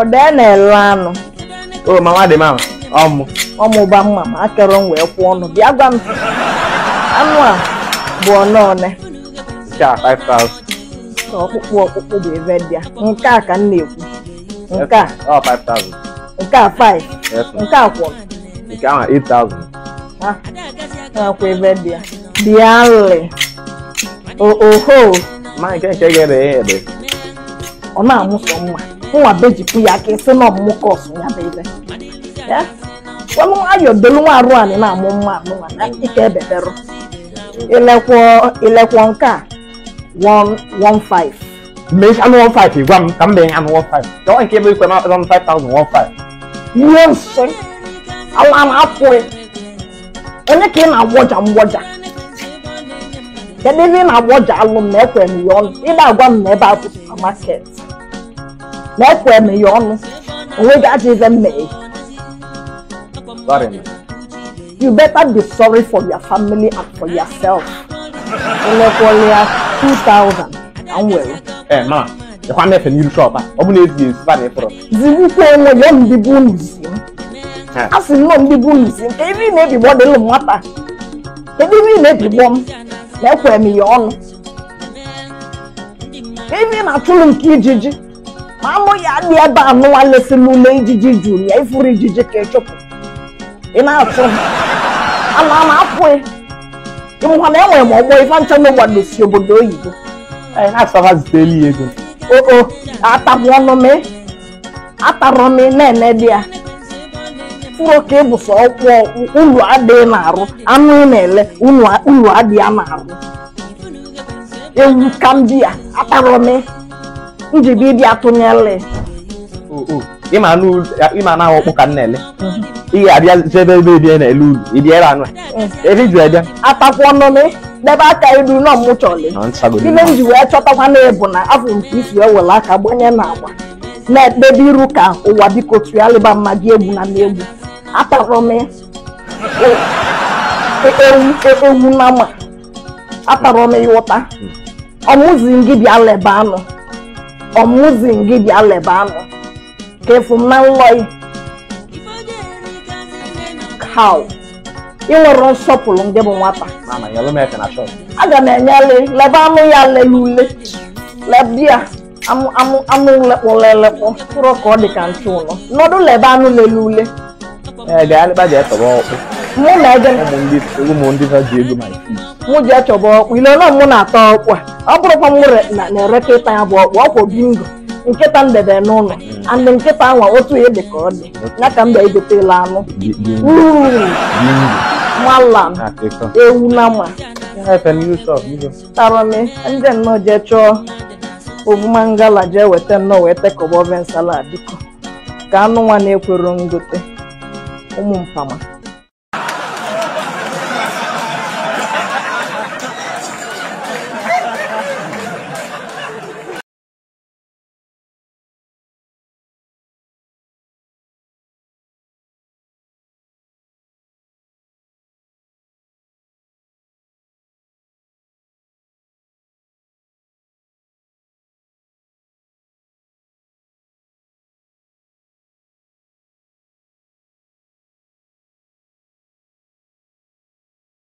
odene lanu oh mama de mama ọmụ ọmụ ba mama akọrọ m wee kwụ ọnụ bịa gwa m anụ a bụ ọnọọne cha 5000 ọkpụkpụ ọkpụkpụ bụ ebe ông nke a ka m na-ekwu nke a Ông 5000 nke Ông 5 nke a kwụ nke ahụ 8000 ha nakwa ebe dị ya bịalị oho ma cái cái cái ede ya Ông ọ na-amụsọ mma nwa beji ya ka esi na ọmụmụ kọsụ ya bụ ebe ayọdolunwa arụ anyị na-amụ mma amụnwa na ike ebeberụ ilekwo nke a 115 mee anụ 15 gwa m ka m bee anụ 15 jọọ nke ebe ikwe na 5015 ihe nsị ala na-apụghị onye ka ị na-agwọja mgwọja kedu ebe ị na-agwọja alụ m na m ya ọnụ ị agwa m na ebe a bụ supamaket na-ekwere ya ọnụ onwe gị ajọ ife mmeghe you better be sorry for your family and for yourself elekwere ya 2000 na nwere ee ma ịkwa mefe n'iru shọp a ọ bụ na ezighi ezi ba na ịfọrọ zigbukwa onwe ya ndị bụ unu zi a sị nnọọ ndị bụ unu zi m ka ebe ị na-ebigbọ dị lụ nwata ebe ị na-ebigbọ m na ekwere m ya ọnụ ebe ị na-achụlụ nke ijiji Mamoya ni ebe anụwa lesi n'ụlọ ijiji juru ya ifuru ijiji ka echụpụ ị na-atụ ama ama apụghị ịmụkwa na enwere m ọgbọ ife nchọ n'ụgbado si obodo oyibo anyị na-asaba zutela ya ego eh, oo oh, oh. atagbu ọnụ m atarọ m na-ene dị ya mkpụrụ ka ịbụsa ọkwụ oh, ụlọ adịghị na-arụ anụ na-ele ụlọ adịghị na-arụ ewu ka m bi ya atarọ m njibi ịbịa tụnyere ịma anaghị ọkpụ ka nna ele Ihe abịa zebe ebe ebie na-ele ulu ibiere anụ ebe juru ebịa atakwa ọnụnụ n'ebe aka ilu nọ mụ chọrọ ime m ji wee chọtakwa na-ebu na afọ nke isi ewere aka gbanye na agba na-ekpebe iru ka ụwa biko tụgharịba mma gị egwu na n'egwu atara m e, e, e, ewu na ma atara m ịwụta mm. ọmụzi m gị bịa leba anụ ọmụzin gị bịa anụ, ka efu m na nlọị kaw ị nwere nsọpụrụ ndị bụ nwata aga m enyele anụ ya lelule lebia amụ lekpọ lelekpọ tụrụ ka ọ dị ka nchụ ụlọ nọdụ anụ lelule ee eh, gaa lekpa ji etọba ọkpụ mụ na ego ụmụ ndị ha ji ego ma mụ ji achọba ọkpụ ile ọnụ mụ na-ata ọkpụ a ọ bụrụkwa m na-ereka ịta ya bụ ọkpụ ọkwụ bingo nkịta m debe n'ụlọ hmm. andị nkịta ahụ otu ihe dị ka ọ dị ya ka mba egotela anụ malam ewu na ma tarọmi ndị nnọọ jee chọọ ovumangala jee weta nnọọ wee tekọba oven salad dịkọ ka anụ nwa na-ekwero ngote ụmụ mpama